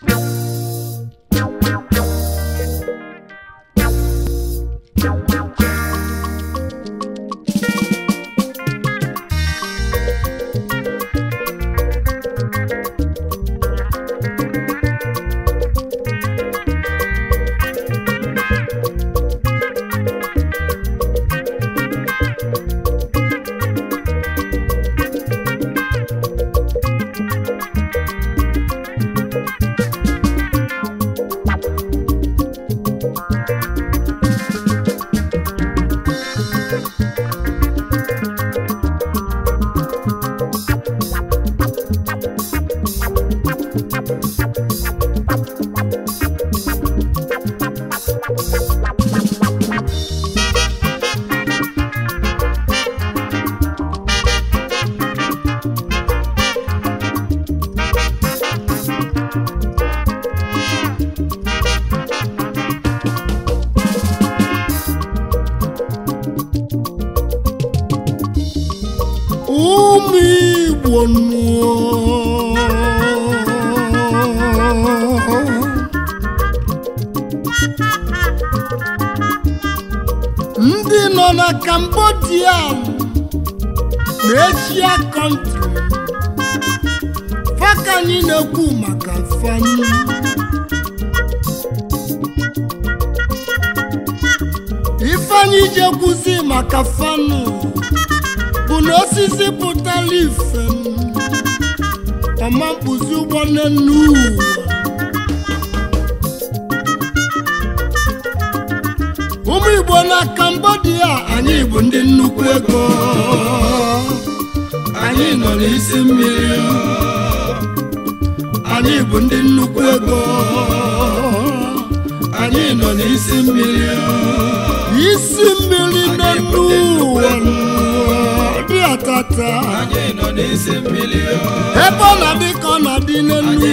Bye. ka anyị na-ekwu maka fani ifeanyị ji ekwuzi maka fanụ bụ na osisi pụtara ife ọma mkpụzi ụgbọ nne uwu ụmụ igbo na Cambodia anyị bụ ndị nnukwu ego anyị nọ n'isi mmiri anyị bụ ndị nnukwu ego anyị nọ n'isi mmiri isi mmiri n'elu ụwa dị atata ebe ọ na dị ka ọ na dị n'elu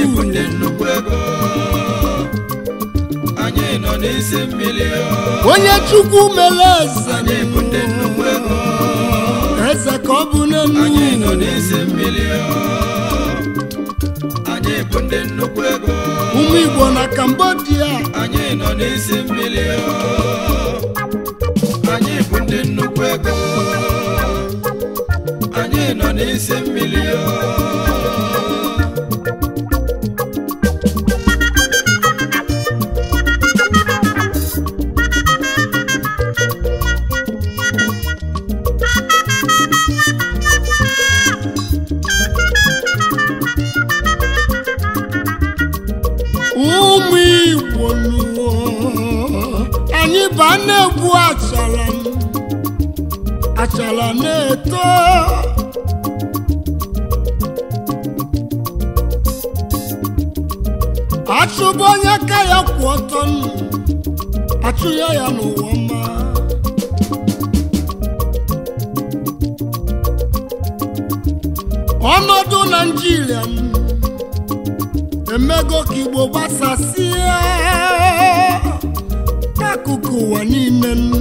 onye chukwu mere eze eze ka ọ bụ n'elu Anyị bụ ndị nnukwu ego ụmụ Igbo na Kambodia, anyị nọ n'isi mmiri anyị bụ ndị nnukwu ego anyị nọ n'isi mmiri achala na-eto achụbụ onye aka ya kwụ ọtọ nnụ achụ ya n'ụwa ọma ọnọdụ naijiria emego ka igbo gbasasịa akụkụ ụwa niile nnụ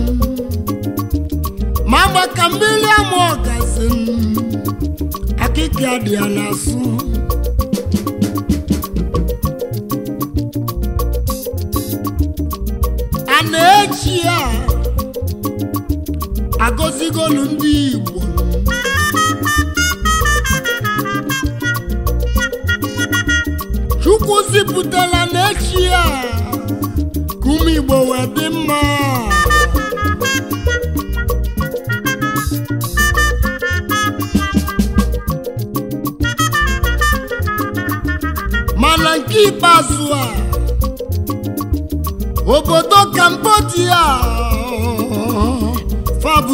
agba ka mmiri amụọ oh, gasị mm. akịka dị ya na n'azụ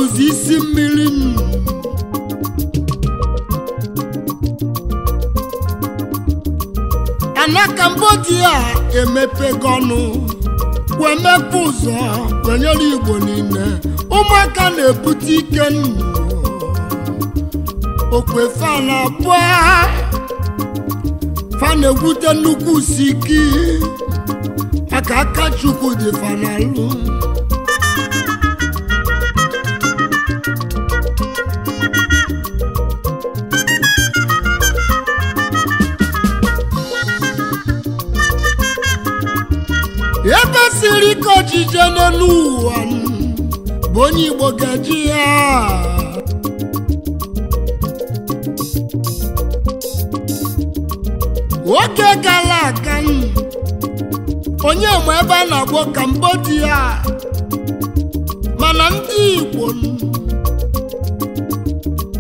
bụzi isi mmiri m ana Cambodia emepegonu wee mepe ụzọ kwenyere Igbo niile ụmụaka na-ebute ike nnu okwefana abụọ fa na-egwute nnukwu si ike maka aka Chukwu dị fanalụ kwesịrị ka ojije n'elu ụwa bụ onye Igbo gaji ya nwoke gara aga onye ma ebe a na-agwọ Cambodia mana ndị Igbo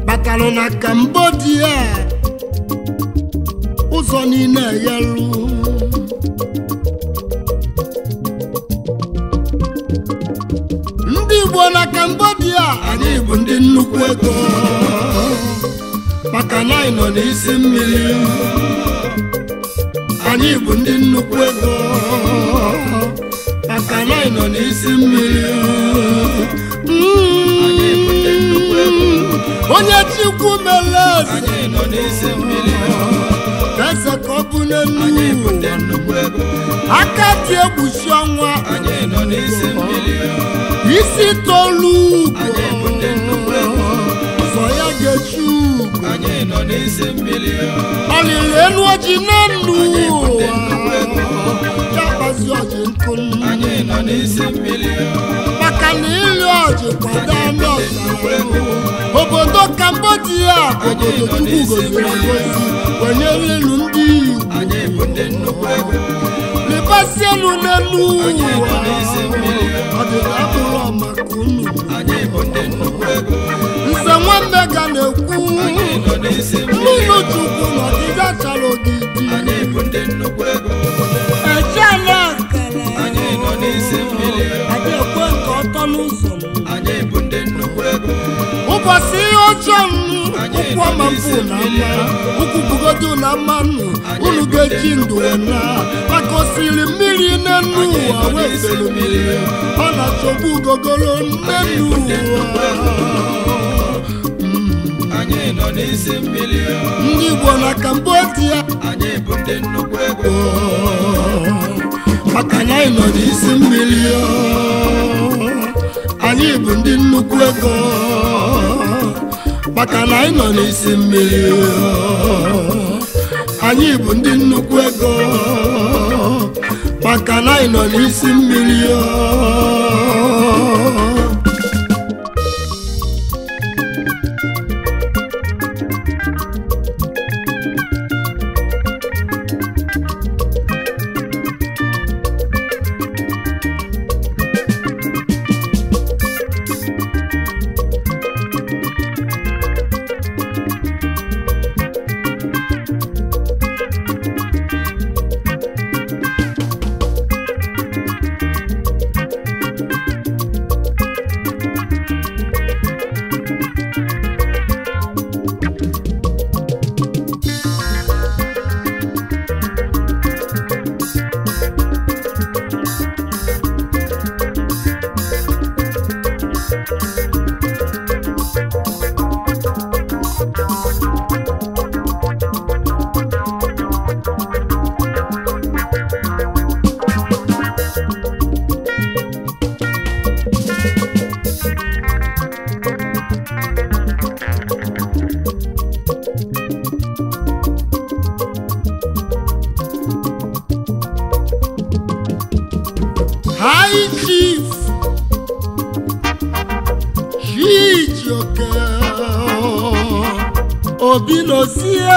batara na Cambodia ụzọ niile yelu nnukwu ego maka na anyị n'isi mmiri anyị bụ ndị nnukwu ego maka na anyị nọ n'isi mmiri onye chukwu meles anyị nọ n'isi mmiri eze ka ọ bụ n'elu aka dị egbusi ọnwa isi tolu ụzọ ya ga-echu ọlịlị elu oji na nnu ya kpazi oji nkụ maka na anụ obodo Cambodia obodo Chukwu goziri ngozi wenyere ilu ndị elu n'elu nze nwanne ga na-ekwu mmiri n'isi mmiri ekwe nke ọtọ n'ụzọ anyị bụ ndị nnukwu ego ụbọchị ihe ọjọọ m ụkwụ ọma mbụ na mma ụkwụ bugodo na mmanụ unu ga-eji ndụ na maka mmiri mmiri n'enu ụwa mmiri ọ na-achọbu ugogoro n'enu ụwa ndị Igbo na Cambodia anyị bụ anyị nọ n'isi mmiri anyị bụ ndị nnukwu ego maka na anyị nọ n'isi mmiri anyị bụ ndị nnukwu ego maka na anyị nọ n'isi mmiri flying chief Chijioke Obinozie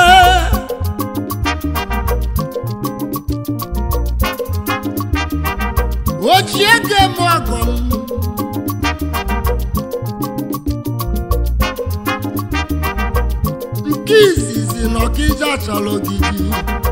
ochiege m ọgọ m nke izizi na ọkija chọrọ ogidi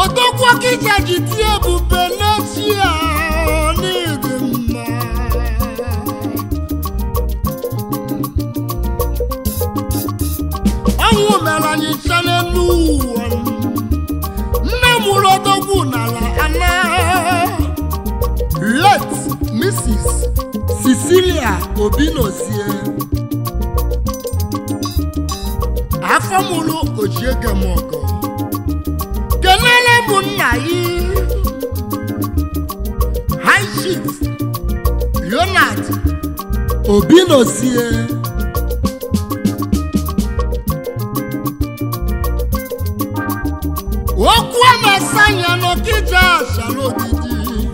odokwa kịta ji tie ebube n'otu n'iri mma anyị cha n'elu ụwa nne mụrụ odogwu n'ala ana let Mrs. Cecilia Obinozie afọ mụrụ ojiege m ụmụnna yi High obi Obinosie okwu na-asanya n'okije asha n'ogidi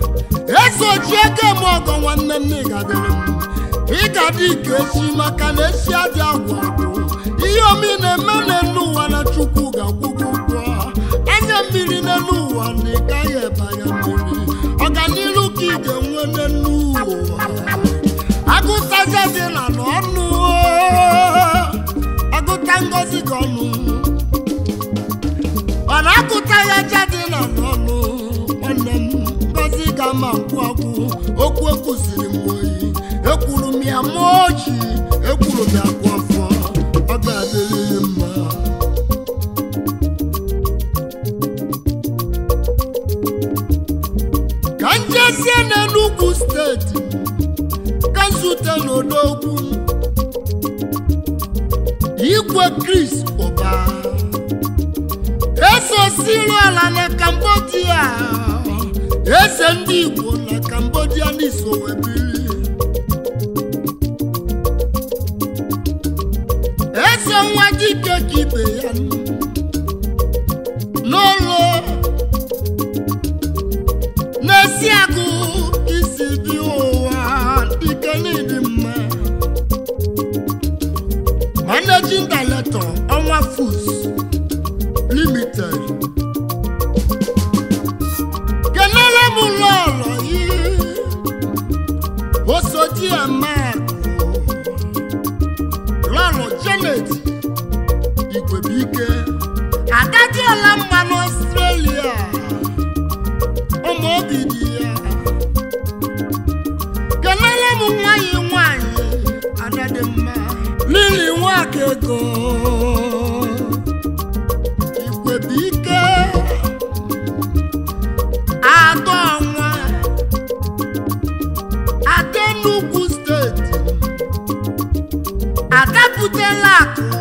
esochi eke m ọgọ nwanne m ịgadị ike echi maka na esi adị agwụ ihe omi na-eme n'elu ụwa na Chukwu ga mmanya dị na n'ọnụ nwanne m gozi ga ma nkwụ ọkwụ okwu ekwusiri m oyi ekwuru m ya ma oji ekwuru m ya kwụ afọ ọ ga-adịrịghị mma ka m jezie n'Enugu steeti ka zute okwu igwe kris Naịjirịa na na Cambodia Ese ndị Igbo na Cambodia n'iso wee biri eze nwa dike ka ibe ya 不见了。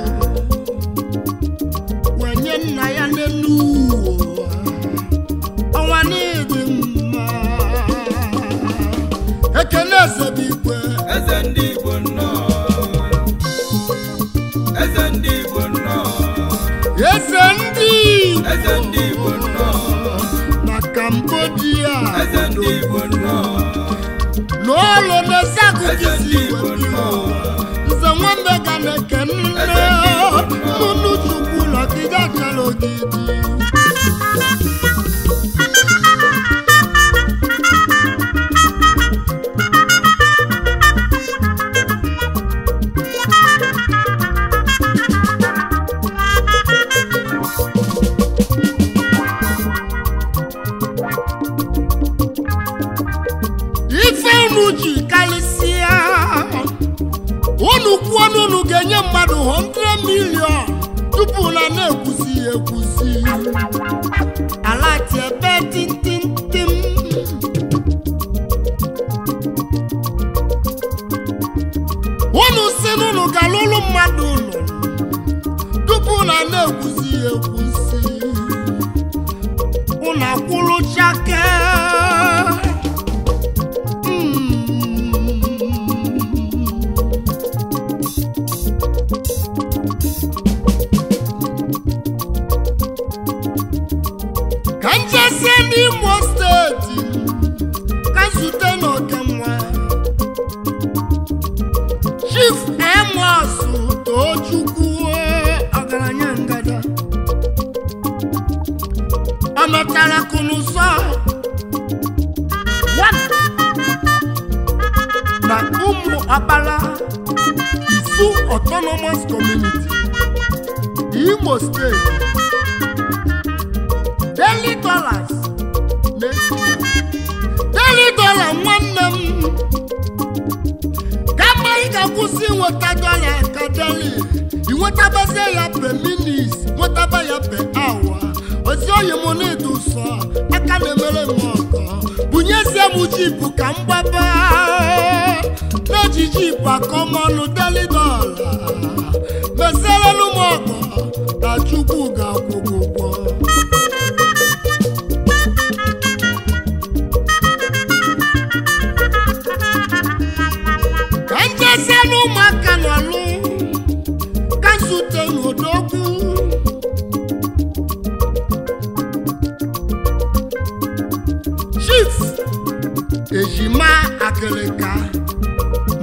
ejima akịlịka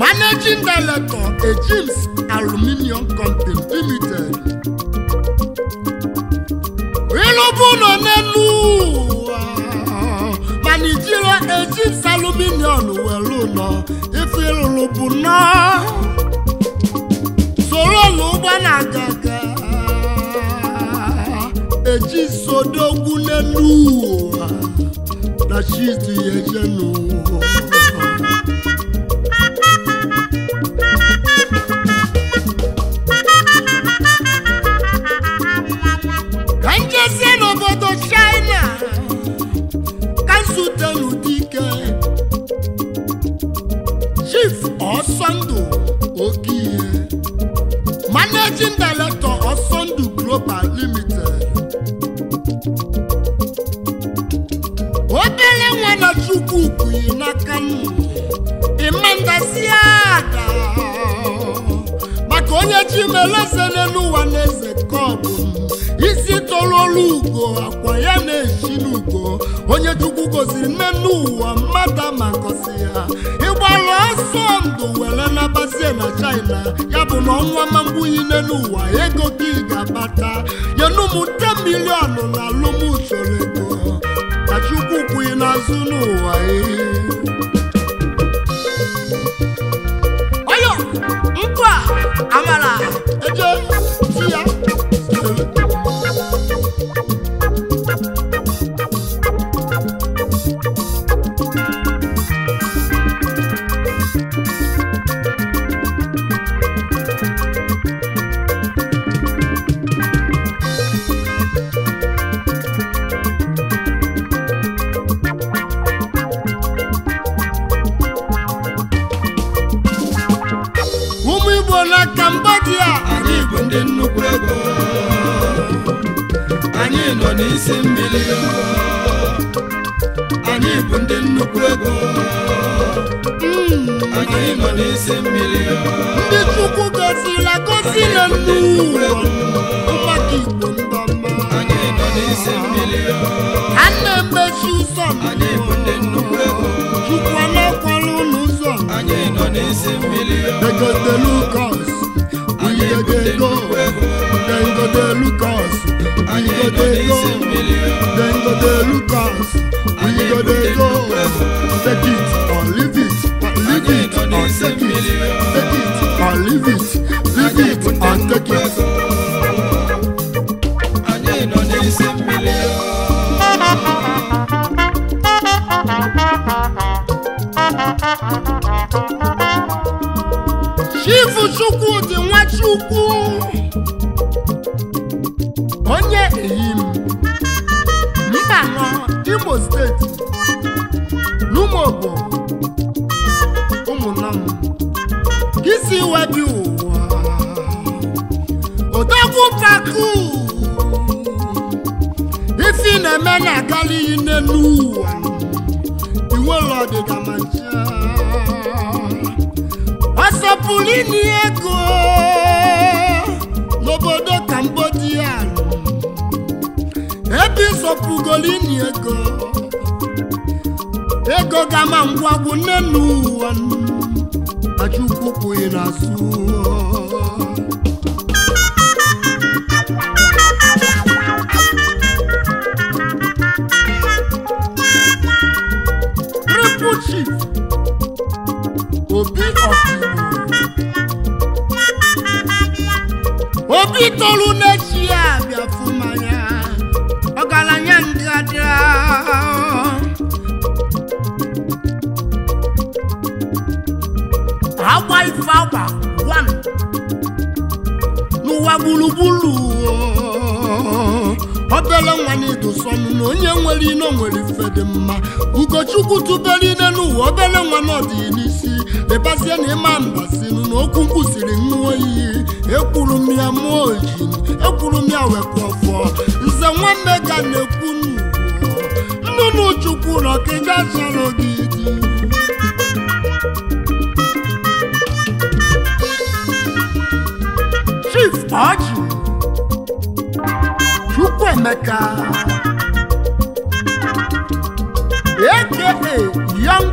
managing director ejims aluminium company limited ịlụbụ nọ n'elu ụwa mana ijiri ejims aluminium were ụlọ ife ịlụlụ bụ nnọọ soro ụlọ ụgbọ na-aga aga eji n'elu ụwa na chi dị ya mmadụ na alụmsoro ego ka Chukwu kwughị n'azụ n'ụwa ehi. amara visit. ni ego n'obodo Cambodia ebe ịsọpụgolini ego ego gama ngwagwu nne n'ụwa achụkwụpụghị n'azụ ụwa gburugburu obele nwa na na onye nwere ino nwere ife dị mma ugochukwu tụbere ine n'ụwa obele nwa n'ọdị n'isi lebazie na ịma mbasinu na okwu kwụsịrị ṅụọ iyi ekwuru m ya mụọ ojin ekwuru m ya wepụ ọfọ nze nwanne ka na-ekwu nnụnụ chukwu na ọkịga chọrọ gị dị Tọji Chukwuemeka aka Young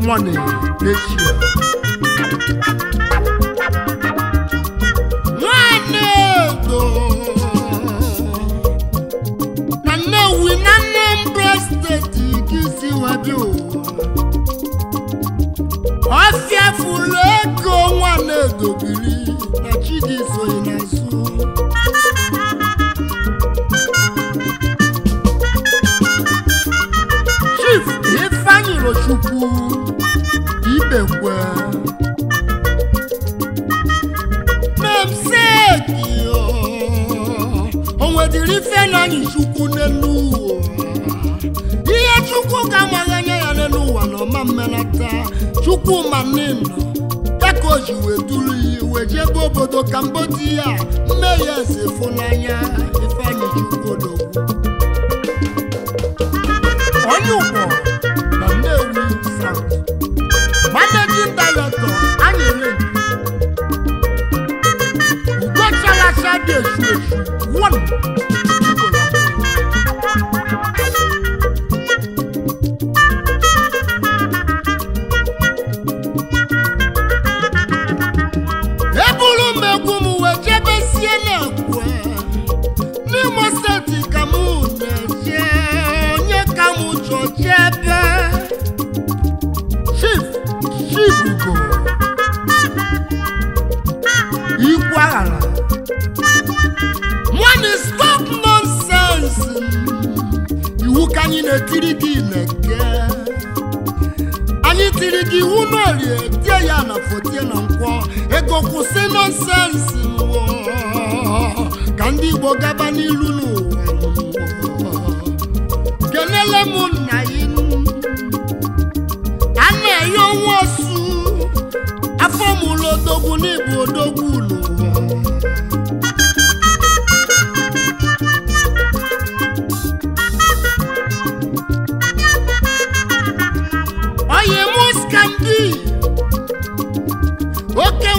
Money Asia nwanne ego na Nnewi na Anambra steeti nke isi wabịa ụwa ọfịa fụrụ ego nwa na-edobiri na Chidi so chukwu n'elu ihe chukwu ga-amaghị anya ya n'elu ụwa na ọma mmelata chukwu ma ya ka o ji wee duru ya iwe jebe obodo Cambodia mmehie eze fụnanya Ifeanyi Chukwudogwu onye ụkpọ na Nnewi South managing director anyere ugochalacha dị esu esu biko kwụsị nọnsensị ka ndị Igbo gaba n'ilu n'ụwa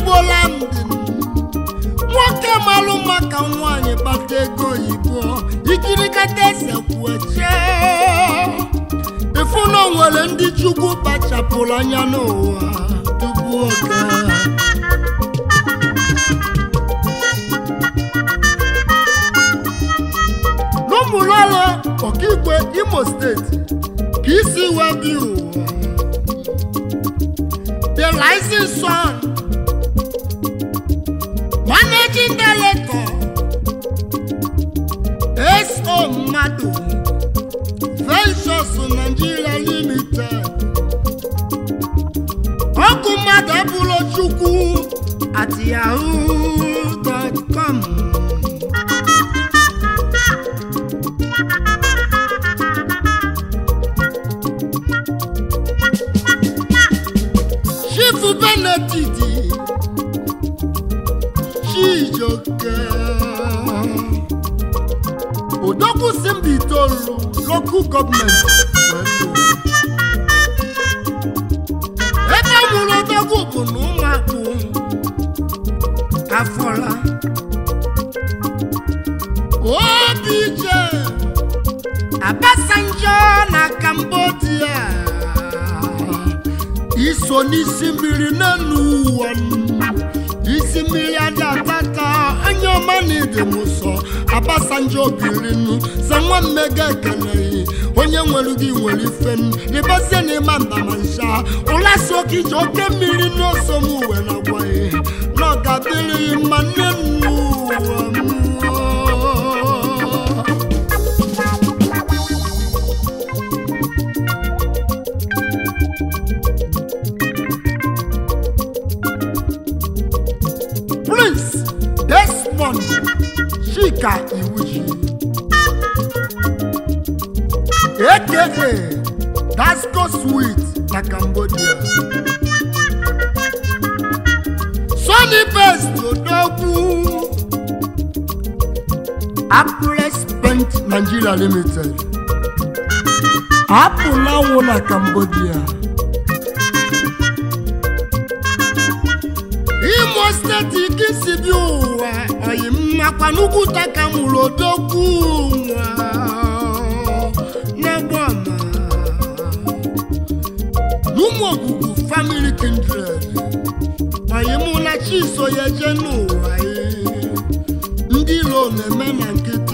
igbo landị nwoke malụ ka nwaanyị kpata ego oyibo ikirikata esekwue chee ịfụ na onwere ndị chukwu kpachapụrụ anya n'ụwa tupu oge n'ụmụlọla ọkaikpe imo steeti ka isi wee dị ụwa the rising sun Ajídélé kan S.O. Mado Ventures Nigeria Limited Ọkùnmadà Bùrọ̀chukwu àti Yahoo. local government ebe nwụrụ odogwu bụ na ụmụakwụ afọla OBJ Abasanjo na Cambodia iso n'isi mmiri n'elu ụwa onye ọma na ibe m sọ abasanjo biri nnu za nwa mmega ekeleghị onye nwere gị nwere ife m rịbazie na ịma ndama nsha ụla si oke iji oke mmiri n'oso m uwe na-agwaghị na ọ ga-adịrịghị mma nne m n'ụwa m Yeke, Dasco Sweet like Cambodia. Sunny Best Odogwu. Apple spent Nigeria Limited. Apple now Lawo a Cambodia. Imo State Ikisi bi ụwa, oyi mmakwa n'ugwu Takamuru Odogwu. so ya eje n'ụwa ndị iro na-eme na nkịta.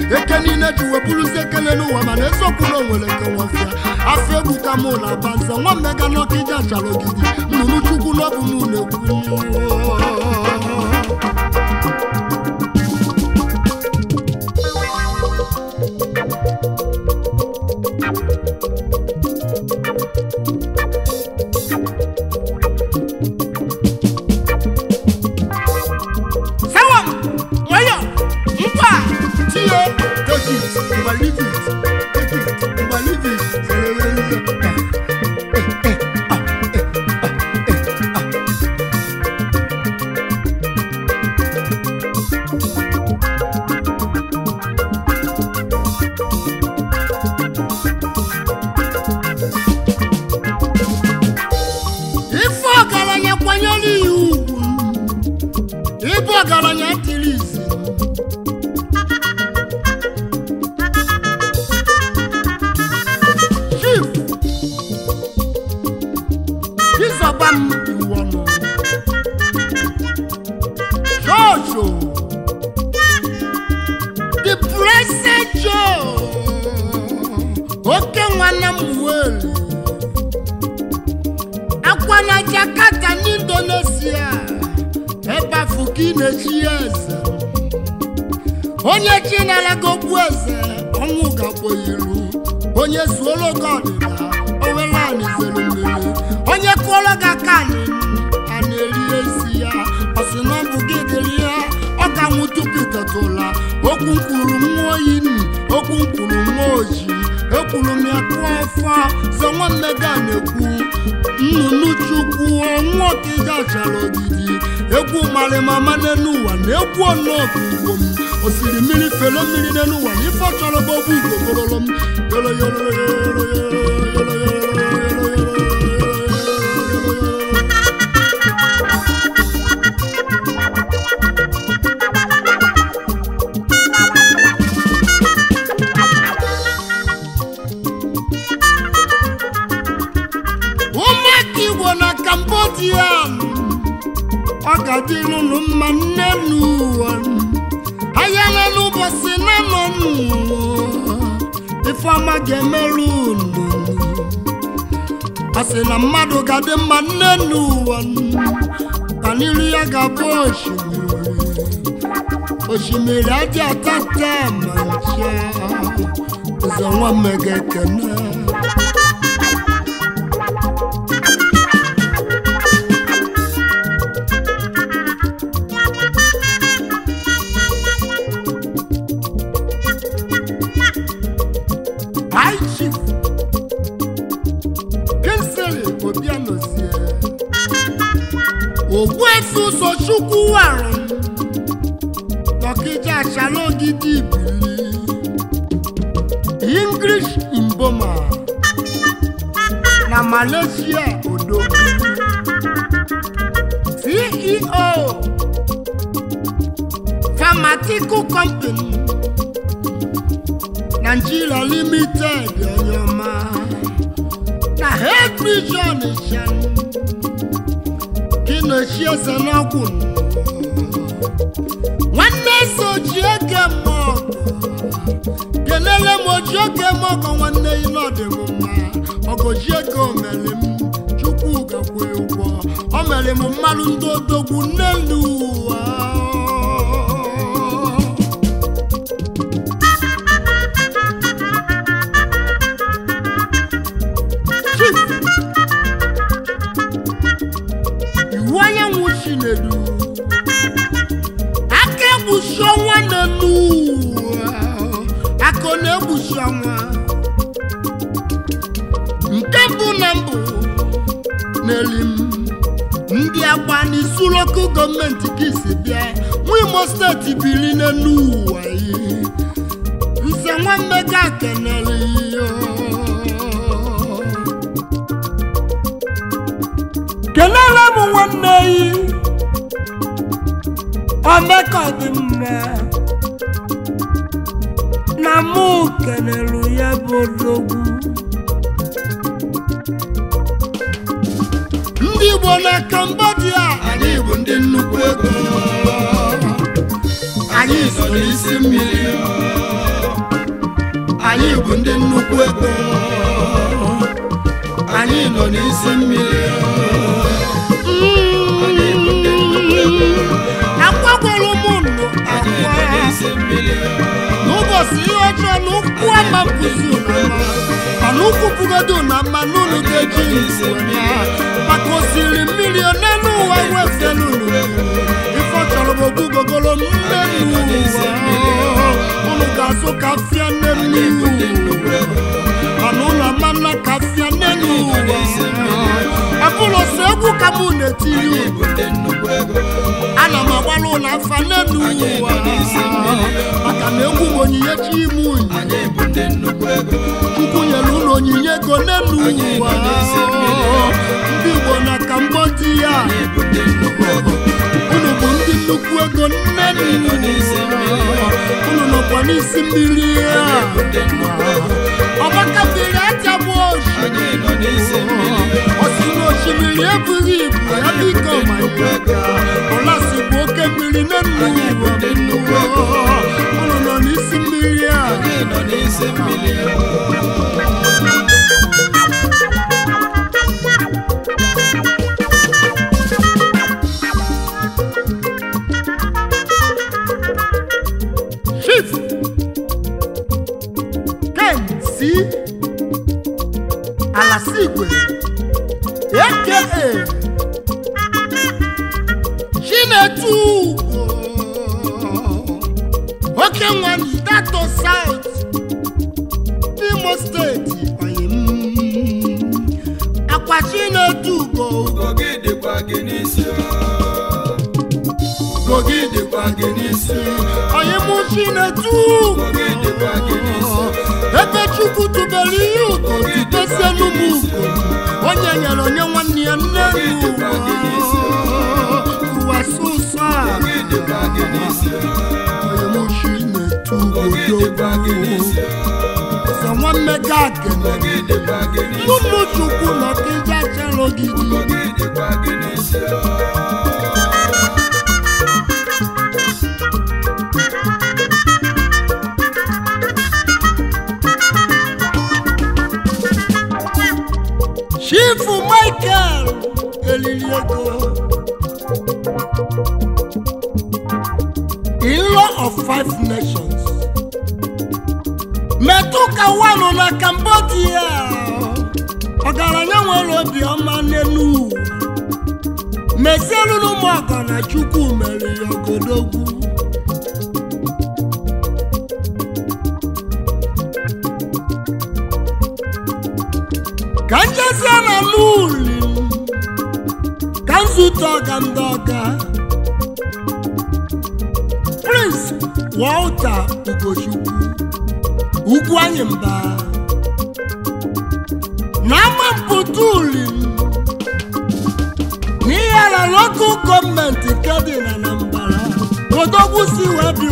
eke niile ji wepụrụzi ekele n'ụwa mana eziokwu na onwere nkewafịa afọ egwu ka mụ na aba mega nwa mmega n'ọkịja chara ogidi nnụnụ chukwu n'ọbụ m na onye chinalaga okwu eze ọnwụ gakwo iru onye zuola oge ọdịda owelanị zere mmiri onye kụọrọ gị aka a na-eri ezi ya ọsị na ọ bụ gị dịrị ya ọ ka nwụ tupu ịtetụla okwu kwuru nwa oyi okwu kwuru nwa ekwuru m ya ọfọ sọ nwanne gị na-ekwu nnụnụ chukwu ọnwa gachara chara ogidi egwu marimama n'elu na egwu ọnọọkụ ugbo m osiri mmiri fere mmiri n'elu na ife chọrọ bụ obu m sị na mmadụ ga-adị mma nne n'ụwa kan'iru ya ga-abụ osimiri osimiri adị atata ma ncha ụzọ nwa mmega ekene chukwu arọ ọkịja gidi ibili english imboma na malaysia odogwu ceo pharmaceutical company ji eze n'ọgwụ nwanne eze oji oge mmụọ kelele m oji oge m ọgọ nwanne ya n'ọdị m mma ọgọji ego omere m chukwu gakwe ụgwọ o mere m mmanụ ndị odogwu nnelu n'eli m ndị agba n'isu lokal gọọmenti ka isi bịa nwa imo steeti biri n'elu ụwa yi nse nwanne ga kenere kenere m nwanne yi omeka dị mma na mụ kenere ya bụ odogwu Igbo na Kambodia, anyị bụ ndị nnukwu ego anyị so n'isi mmiri anyị bụ ndị nnukwu ego anyị nọ n'isi mmiri si ojo lukua makuzu nama aluku bugodu nama lulu deji nsunya pakosiri milione nuwa wese lulu ifọtsọlọbọ gugogolo mmenu wa olugaso kafia nenu. mana ụlọ mmanụ kasịa n'elu ụwa akụlọ si egwu ka mụ na-etiri ana m agbara ụlọ afa n'elu ụwa maka na egwu onyinye chi ime unyi chukwu nyere ụlọ onyinye ego n'elu ụwa ndị Igbo na kambodịa nnukwu ego nne unu nọkwa n'isi mmiri ya ọgbakatiri aja bụ oshi osiri osimiri ebughị ibu ya biko ọlasi bụ oke mmiri na nnukwu unu nọ n'isi mmiri ya way. eze nwammega akene ụmụchukwu nọkija chere ogidi chifu michael elili ego in law of five ụka Wanu na Cambodia ọgaranya nwere obiọma n'elu mezielu n'ụmụ ọgọ na Chukwu mere ya ogodogwu ka njezie na n'uli ka nzute ọga ndị ọga Prince Walter Ugochukwu ukwu anyị mba n'ama mpụta uli n'ihere lokal gọọmenti nke dị na nambara odogwu si wee bi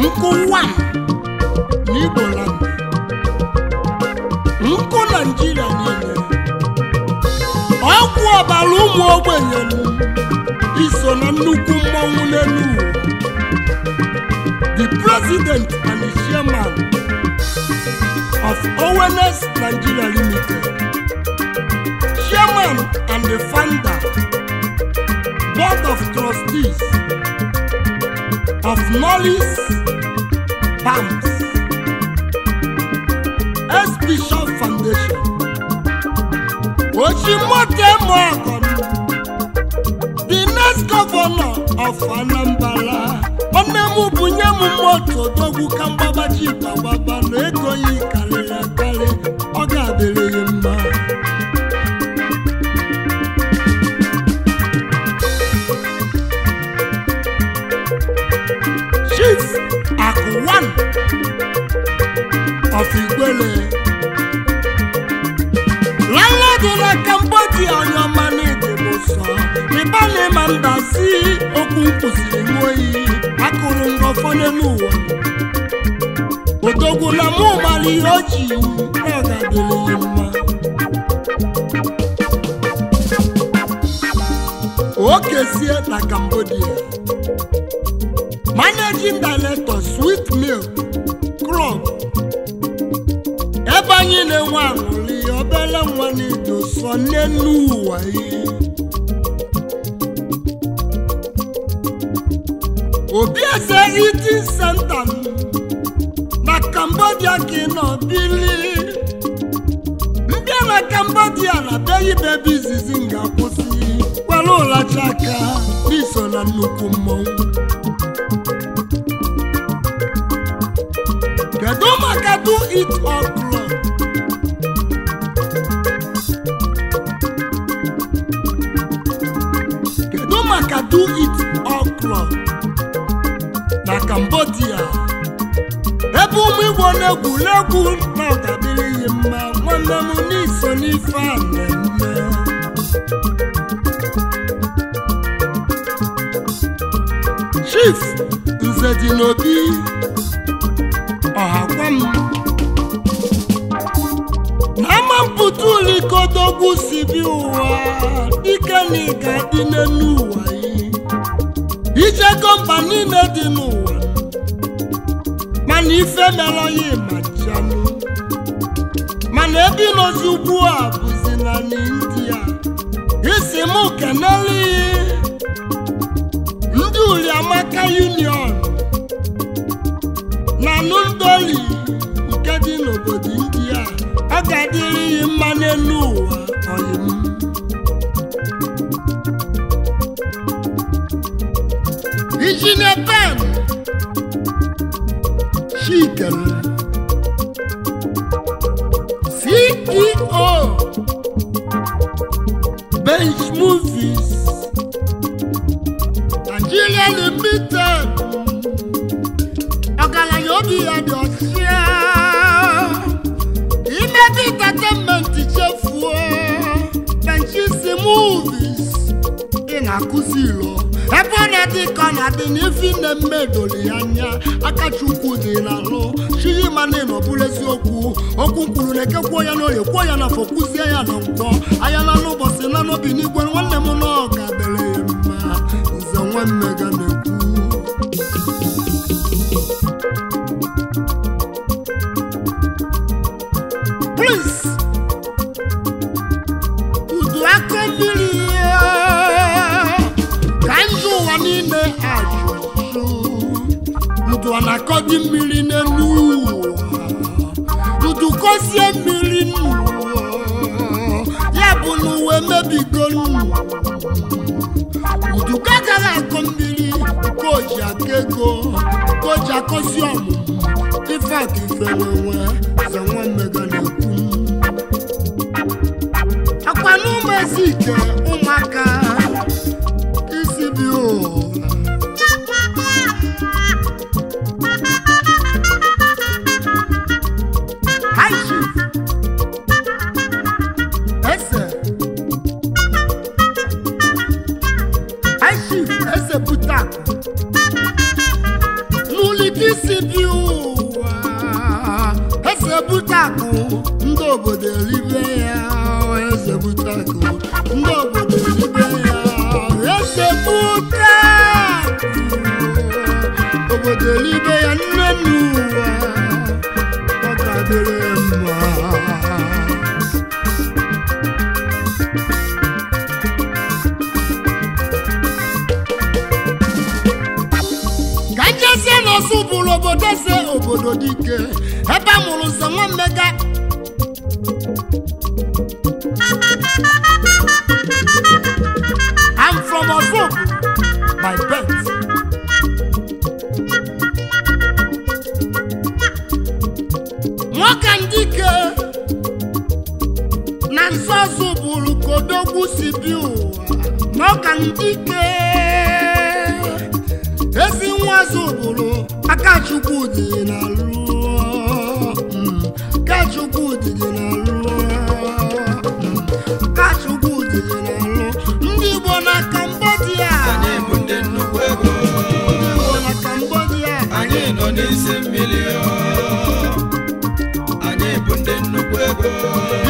nkụwa n'Igbo nkụ Naịjirịa niile ọgwụ ọbara ụmụ ogbenye iso na nnukwu mmọnwụ n'elu the president and the chairman of ONS Nigeria Limited, chairman and the founder, board of trustees of Knowledge Pumps, S. Bishop Foundation, Oshimote Moakon first governor of Anambra onye m bụ nye m moto dogwu na ego ya karịrị akarị ọ ga-adịrịghị mma chief akụwan of Igwele landlord na Cambodia onye mba si okwu nkwụsịrị n'oyi akụrụ ngọfọ n'elu ụwa odogwula mụ mara ihe o ji ọ mma adịrị ya mma okesie na Cambodia managing sweet milk krọb ebe anyị na-enwe aṅụrị obere nwa na-edo sọ n'elu ụwa ihe obieze iti center mi na cambodia ka ị nọ bili mbịa na cambodia na be ibebe izizi m ga-akwụsị kwere ụlacha aka n'iso na nnukwu mmọnwụ kedu maka do it all club kedu maka do it all club na Cambodia ebe ụmụ Igbo na-egwuregwu na ọkadịrịghị mma nwanne m n'iso n'ife a na-eme Chief Nze dị n'obi ọha gwa m n'ama mpụta ụlọ ikodogwu si bi ụwa dike na ị ga n'elu ụwa ya ijego mba niile dị n'ụwa mana ife mere ya ịmajianụ mana ebe ịnọzi ugbu a bụzi na india isi m kenele ndị uriamaka union na nudoli nke dị n'obodo india ọ ga-adịrị mma n'elu ụwa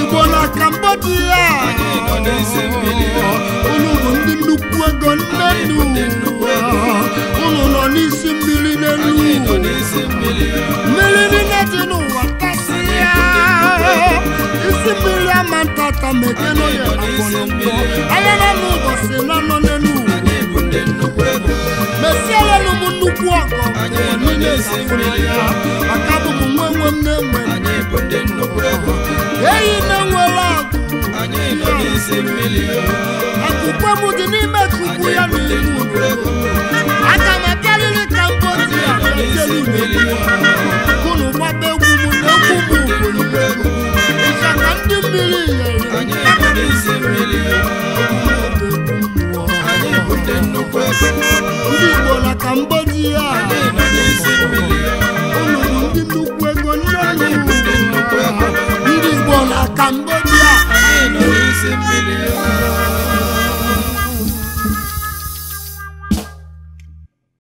igbo n'aka mba dị ya unu bụ ndị nnukwu ego nnenu unu nọ n'isi mmiri n'elu mmiri niile dị n'ụwa kasị ya isi mmiri ama ntata mekenoya akọlọtọ anya na ụbọchị na nọ n'elu mesia ya no mu nnukwu ọgọ enu na-esi ya maka bụ m nwe nwe m na-enwe eyi na-enwere agụ akụkwe m dị n'ime kụkwu ya na ibu aga m abịarịrị ka mbọ dị ya kụnụ gbaba egwu m na egwu m ugwuru ịchaka ndị mmiri yere ndị Igbo na Cambodia na ndị nnukwu ego ndị ndị Igbo na Cambodia